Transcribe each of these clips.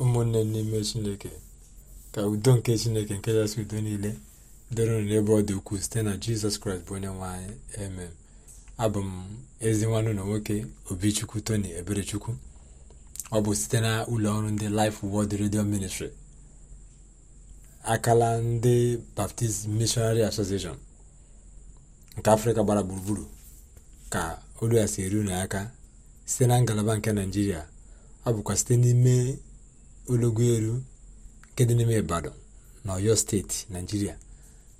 ụmụnne n'ime chineke ka udo nke chineke nke kachasị udo niile doro n'ebe ọ dị ukwuu site na jizọs kraịst bụ onye nwanyị emem abụ m ezi nwanne ụlọ nwoke obichukwu tony eberechukwu ọ bụ site na ụlọ ọrụ ndị Life Word redio Ministry akala ndị Baptist Missionary Association nke afrịka gbara gburugburu ka olu ya si eru na aka site na ngalaba nke naijiria ọ bụkwa site n'ime ologo elu nke dị n'ime Ibadan na steeti Naijiria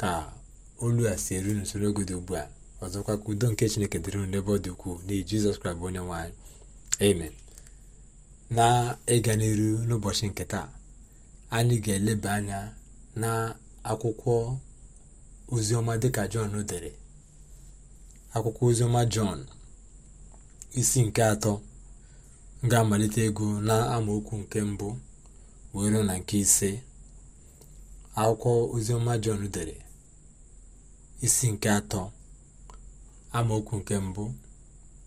ka olu a si eru n'usoro oge dị ugbu a ọzọkwa ka udo nke Chineke dịrị unu n'ebe ọ dị ukwuu n'ihi Jizọs Kraịst bụ onye nwe amen na ịga n'iru n'ụbọchị nke taa anyị ga-eleba anya na akwụkwọ oziọma dịka Jọn dere akwụkwọ oziọma Jọn isi nke atọ ga-amalite ego na amaokwu nke mbụ wee na nke ise akwụkwọ oziọma jọn dere isi nke atọ amaokwu nke mbụ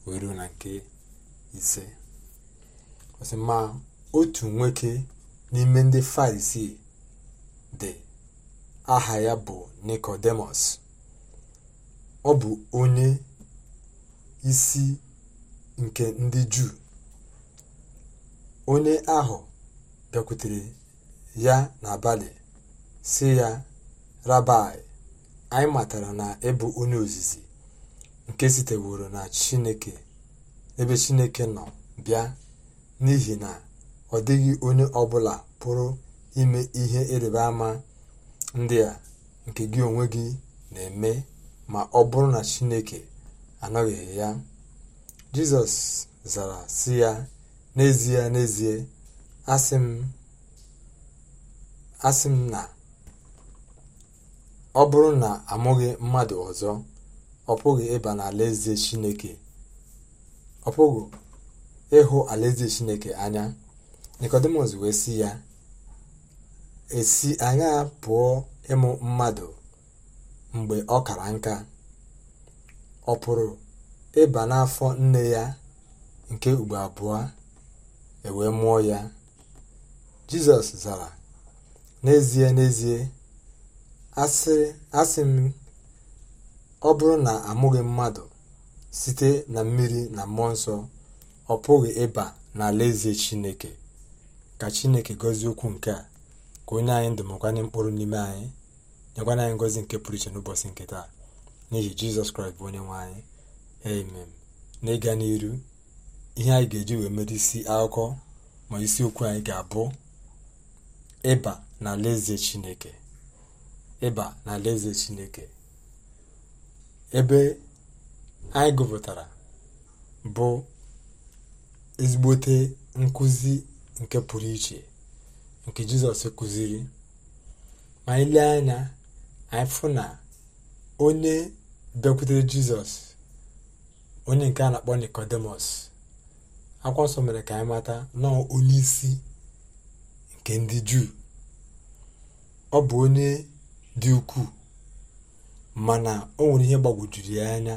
wee na nke ise ma otu nwoke n'ime ndị farisii dị aha ya bụ nikodemus ọ bụ onye isi nke ndị juu onye ahụ bịakwutere ya n'abalị si ya rabai anyị matara na ịbụ onye ozizi nke siteworo na chineke ebe chineke nọ bịa n'ihi na ọ dịghị onye ọbụla pụrụ ime ihe ịrịba ama ndị a nke gị onwe gị na-eme ma ọ bụrụ na chineke anọghị ya jizọs zara sị ya n'ezie n'ezie asị m na ọ bụrụ na amụghị mmadụ ọzọ ọ pụghị ịba n'alaeze chineke ọ pụghị ịhụ alaeze chineke anya nikodemus wee e si ya esi anya pụọ ịmụ mmadụ mgbe ọ kara nka ọ pụrụ ịba n'afọ nne ya nke ugbo abụọ ewee mụọ ya Jizọs zara n'ezie n'ezie asị m ọ bụrụ na amụghị mmadụ site na mmiri na mmụọ nsọ ọ pụghị ịba n'alaeze Chineke ka Chineke gọzie okwu nke a ka onye anyị ndụmọkwanye mkpụrụ n'ime anyị nyekwana anyị ngozi nke pụrụ iche n'ụbọchị nke taa n'ihi Jizọs Kraịst bụ onye nwe anyị na n'ịga n'iru ihe anyị ga-eji wee mere isi akụkọ ma isi okwu anyị ga-abụ ịba n'alaeze chineke ịba chineke ebe anyị gụpụtara bụ ezigbote nkụzi nke pụrụ iche nke jizọs kụziri ma anyị lee anya anyị fụ na onye bịakwutere jizọs onye nke a na-akpọ nikodemus akwa nsọ mere ka anyị mata nọọ onye isi nke ndị juu ọ bụ onye dị ukwuu mana ọ nwere ihe gbagwojuru ya anya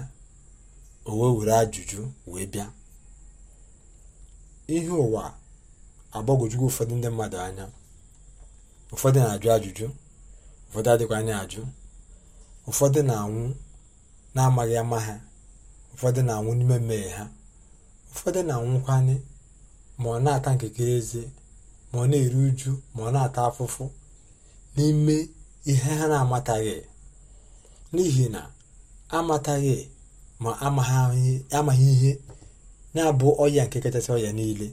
o wee were ajụjụ wee bịa ihe ụwa agbagwojugo ụfọdụ ndị mmadụ anya ụfọdụ na-ajụ ajụjụ ụfọdụ adịkwa anya ajụ ụfọdụ na-anwụ na-amaghị ama ha ụfọdụ na-anwụ n'ime mmehie ha ụfọdụ na-anwụkwanye ma ọ na ata nkekere eze ma ọ na-eru uju ma ọ na-ata afụfụ n'ime ihe ha na-amataghị n'ihi na amataghị ma amaghị ihe na-abụ ọya nke kachasị ọya niile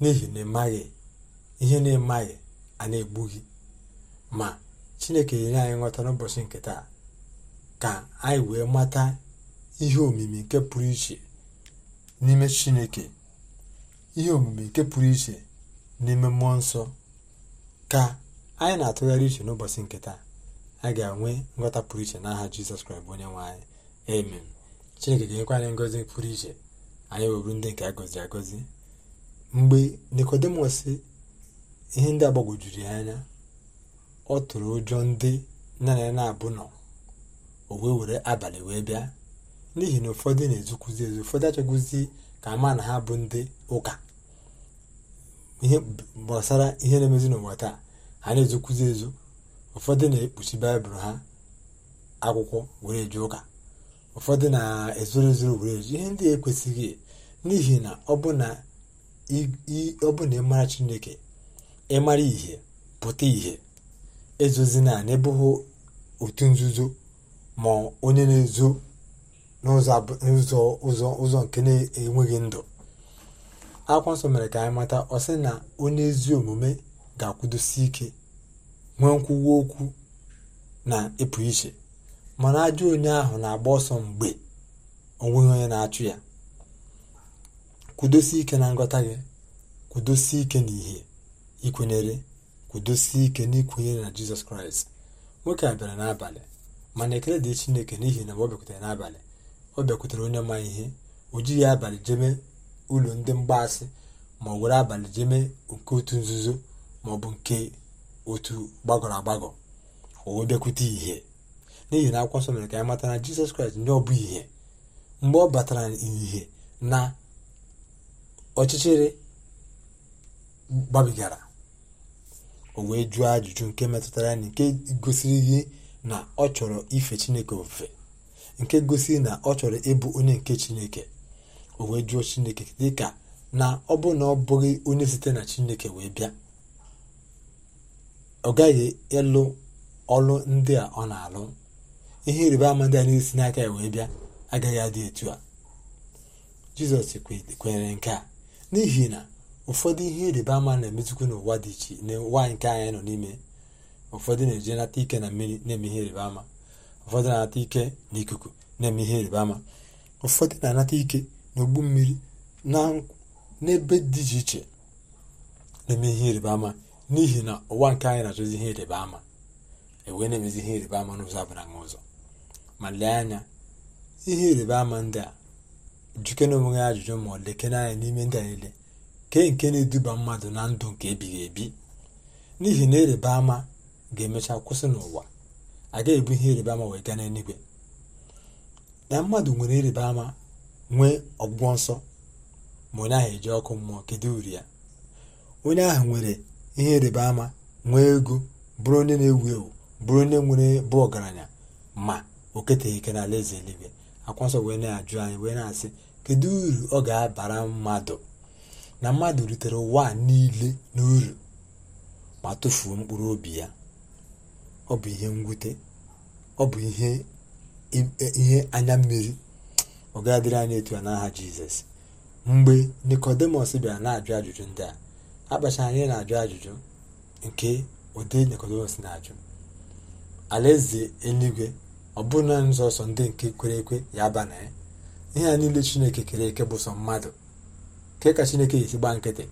n'ihi na ịmaghị ihe na-emaghị a na egbughị ma chineke nyere anyị nghọta n'ụbọchị nke taa ka anyị wee mata ihe omimi nke pụrụ iche n'ime chineke ihe omimi nke pụrụ iche n'ime mmụọ nsọ ka anyị na-atụgharị iche n'ụbọchị nke taa a ga-enwe nghọta pụrụ iche n'aha jizọs kraịst bụ onye nwe anyị amen chineke ga-enyekwa anyị ngozi pụrụ iche anyị weburu ndị nke a gọziri agọzi mgbe nikodimọs ihe ndị agbagwojuru ya anya ọ tụrụ ụjọ ndị nna ya na-abụ nọ o wee were abalị wee bịa n'ihi na ụfọdụ na-ezukwuzi ezu ụfọdụ achọgwụzi ka ama na ha bụ ndị ụka ihe gbasara ihe na-emezi n'ụwa taa ha na-ezokwuzi ezo ụfọdụ na-ekpuchi baịbụl ha akwụkwọ were ụka ụfọdụ na-ezoro ezoro were ihe ndị ekwesịghị e, n'ihi na ọ bụ na ịmara chineke ịmara ihe pụta ihe ezozi naanị bụghị otu nzuzo ma onye na-ezo n'ụzọ nke na-enweghị ndụ akwụkwọ nsọ mere ka anyị mata ọ sị na onye ezi omume ga-akwụdosi ike nwee nkwuwa okwu na ịpụ iche mana ajọ onye ahụ na-agba ọsọ mgbe onweghị onye na-achụ ya kwudosi ike na ngọta gị kwudosi ike na ihe ikwenyere kwudosi ike n'ikwenyere na jizọs kraịst nwoke a bịara n'abalị mana ekele dị chineke n'ihi na ọ bịakwutere n'abalị ọ bịakwutere onye ma ihe o jighị abalị jebe ụlọ ndị mgbaasị ma ọ were abalị jee mee nke otu nzuzo ma ọ bụ nke otu gbagọrọ agbagọ o wee bịakwute ihe n'ihi na akwụkwọ nsọ mere ka anyị mata na jizọs kraịst ndị ọ bụ ihe mgbe ọ batara ìhè na ọchịchịrị gbabigara o wee jụọ ajụjụ nke metụtara ya na nke gosiri ihe na ọ chọrọ ife chineke ofufe nke gosiri na ọ chọrọ ịbụ onye nke chineke o wee jụọ chineke dịka na ọ bụ na ọ bụghị onye site na chineke wee bịa ọ gaghị ịlụ ọlụ ndị a ọ na-alụ ihe ịrịba ama ndị a na-esi n'aka ya wee bịa agaghị adị etu a jizọs kwenyere nke a n'ihi na ụfọdụ ihe ịrịba ama na-emezikwu n'ụwa dị iche n'ụwa nke anyị nọ n'ime ụfọdụ na-eje nata ike na mmiri na-eme ihe ịrịba ama ụfọdụ na-anata ike ikuku na-eme ihe ịrịba ama ụfọdụ na-anata ike n'ogbu mmiri na n'ebe dị iche iche na-eme ihe ịrịba ama n'ihi na ụwa nke anyị na-achọzi ihe ịrịba ama ewee na-emezi ihe ịrịba ama n'ụzọ abara na ụzọ ma lee anya ihe ịrịba ama ndị a jike na onwe ya ajụjụ ma ọ lekene anya n'ime ndị a niile kee nke na-eduba mmadụ na ndụ nke ebighị ebi n'ihi na ịrịba ama ga-emecha kwụsị n'ụwa agaghị ebu ihe ịrịba ama wee gaa n'eluigwe na mmadụ nwere ịrịba ama nwee ọgwụgwọ nsọ ma onye ahụ eji ọkụ mmụọ kedu uru ya onye ahụ nwere ihe ịrịba ama nwee ego bụrụ onye na-ewu ewu bụrụ onye nwere bụ ọgaranya ma o keteghị ike n'ala eze eluigwe akwa nsọ wee na-ajụ anyị wee na-asị kedu uru ọ ga-abara mmadụ na mmadụ rutere ụwa niile n'uru ma tụfuo mkpụrụ obi ya ọ bụ ihe mwute ọ bụ ihe e, anya mmiri ọ ga-adịrị anyị etu a n'aha jizọs mgbe nikodemos bịara na-ajụ ajụjụ ndị a akpachara anyị na-ajụ ajụjụ nke ụdị nikodemos na-ajụ alaeze eluigwe ọ bụrụ na nzọsọ ndị nke kwere ekwe ya aba na ya ihe a niile chineke kere eke bụ sọ mmadụ nke ka chineke esi gbaa nkịtị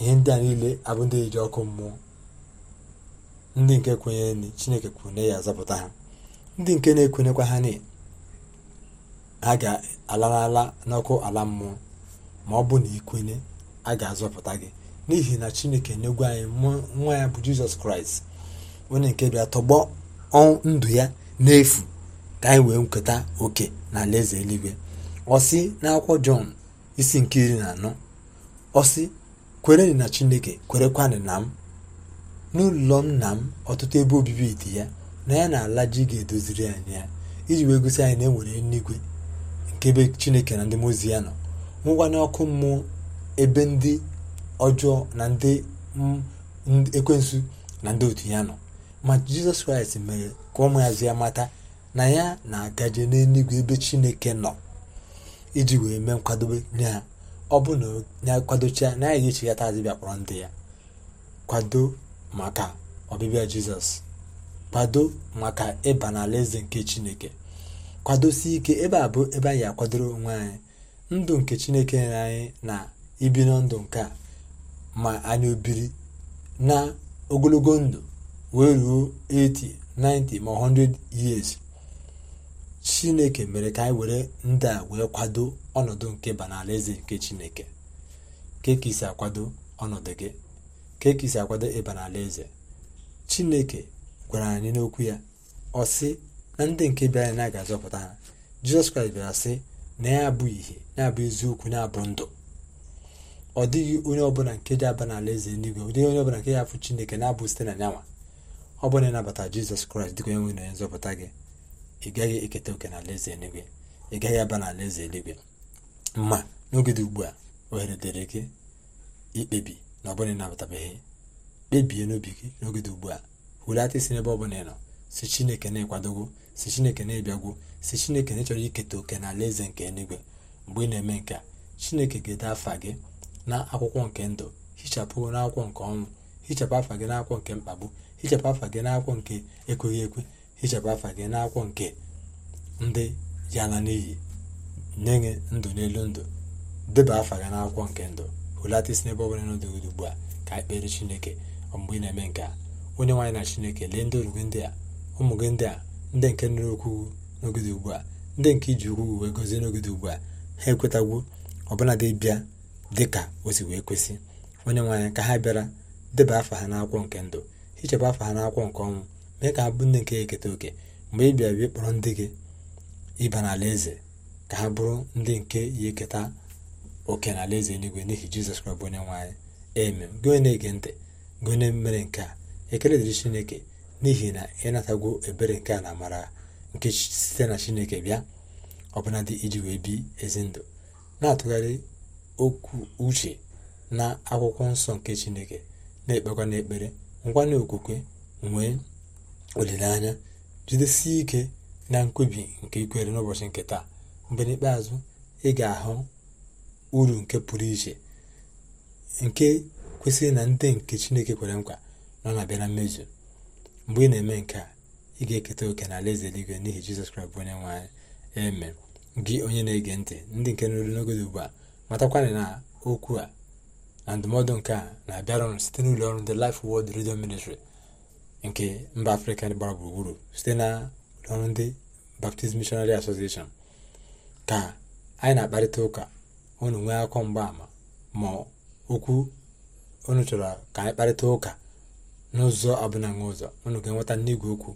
ihe ndị a niile abụ ndị eji ọkụ mmụọ ndị nke kwenyere chineke kwune ya zapụta ha ndị nke na ekwenyekwa ha niile a ga alalala n'ọkụ ala mmụọ ma ọ bụ na ikwenye a ga-azọpụta gị n'ihi na chineke n'egwu anyị nwa ya bụ jizọs kraịst onye nke bịa tọgbọ ndụ ya n'efu ka anyị wee nketa oke na alaeze eluigwe ọsi sị n'akwụkwọ jọn isi nke iri na anọ ọ sị na chineke kwerekwanị na m n'ụlọ nna m ọtụtụ ebe obibi dị ya na ya na ala ji ga-edoziri anyị ya iji wee gosi anyị na e nwere eluigwe nke ebe chineke na ndị mozi ya nọ mụwa ọkụ mmụọ ebe ndị ọjọọ na ndị ekwensu na ndị otu ya nọ ma jizọs kraịst mere ka ụmụazụ ya mata na ya na-agaje n'eluigwe ebe chineke nọ iji wee mee nkwadobe nye ha ọ bụ na ya kwadocha na ya ga-echeghata adịbịa kpọrọ ndị ya kwado maka ọbịbịa jizọs kwado maka ịba n'ala eze nke chineke kwadosi ike ebe a bụ ebe anyị akwadoro onwe anyị ndụ nke chineke nyere anyị na ibi na ndụ nke a ma anyị obiri na ogologo ndụ wee ruo 80 90 ma 100 years chineke mere ka anyị were ndị a wee kwado ọnọdụ nke ba nke chineke keka isi akwado ọnọdụ gị kekisi isi akwado ịba chineke gwara anyị n'okwu ya ọ na ndị nke bịara na ga-azọpụta ha jizọs kraịst bịara sị na ya abụ ihe na-abụ eziokwu na-abụ ndụ ọ dịghị onye ọbụla nke ji aba n'ala eze eluigwe ọ dịghị onye ọbụla nke ya afụ chineke na-abụ site na nyanwa ọ bụrụ na ịnabata jizọs kraịst dịka onye nwe na onye nzọpụta gị ị gaghị eketa oke n'ala eze eluigwe ị gaghị aba n'ala eze eluigwe mma n'oge dị ugbu a ohere dịrị gị ikpebi na ọ bụla ịnabatabeghị kpebie n'obi gị n'oge dị ugbu a hulata isi n'ebe ọ bụla ị nọ si chineke na-ekwadogo si chineke na-ebiagwo si chineke na echọrọ iketa oke na ala eze nke eluigwe mgbe ị na-eme nke chineke ga-ede afa gị na akwụkwọ nke ndụ hichapụ n'akwụkwọ nke ọnwụ hichapụ afa gị n'akwụkwọ nke mkpagbu hichapụ afa gị n'akwụkwọ nke ekweghị ekwe hichapụ afa gị n'akwụkwọ nke ndị ya na n'iyi nye ndụ n'elu ndụ deba afa gị n'akwụkwọ nke ndụ hụlatisi n'ebe ọ bụla n'ụdị ugbu a ka ikpere e chineke mgbe ị na-eme nke a onye nwaanyị na chineke lee ndị ndị a ụmụ gị ndị a ndị nke nụrụ okwu n'ogide ugbu a ndị nke iji ukwu wee gozie n'ogide ugbu a ha ekwetagwo ọbụladị bịa dị ka o wee kwesị onye nwaanyị ka ha bịara deba afa ha n'akwụkwọ nke ndụ hichapụ afa ha n'akwụkwọ nke ọnwụ mee ka ha bụ ndị nke eketa oke mgbe ị bịara ịkpọrọ kpọrọ ndị gị ịba n'ala eze ka ha bụrụ ndị nke ya eketa oke n'ala eze eluigwe n'ihi jizọs kraịst bụ onye nwaanyị eme gị na-ege ntị gị onye mere nke a ekele dịrị chineke n'ihi na ịnatago ebere nke a na amara nke site na chineke bịa ọbụnadị iji wee bi ezi ndụ na-atụgharị okwu uche na akwụkwọ nsọ nke chineke na-ekpekwa n'ekpere ngwa okwukwe nwee olileanya jidesie ike na nkwubi nke ikwere n'ụbọchị nke taa mgbe n'ikpeazụ ị ga-ahụ uru nke pụrụ iche nke kwesịrị na ndị nke chineke kwere nkwa ọ na-abịa na mmezu mgbe ị na-eme nke a ị ga-eketa oke na alaeze eluigwe n'ihi jizọs kraịst bụ onye nwe eme gị onye na-ege ntị ndị nke nụrụ n'oge ugbu a matakwana na okwu a na ndụmọdụ nke a na-abịara site n'ụlọ ọrụ ndị Life wod Radio Ministry nke mba afrịka gbara gburugburu site na ụlọ ọrụ ndị Baptist Missionary Association ka anyị na-akparịta ụka unu nwee akọ mgbaama ma okwu unu chọrọ ka anyị kparịta ụka n'ụzọ abụnaghị ụzọ unu ga-enweta n'igwe okwu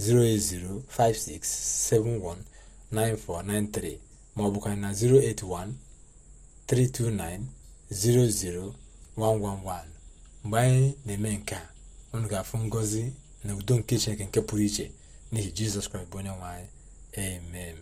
08056719493 maọbụkwa na 08132900111 mgbe anyị na-eme nke a unu ga-afụ ngọzi na udo nke iche nke pụrụ iche n'ihi Jizọs Kraịst bụ onye nwe amen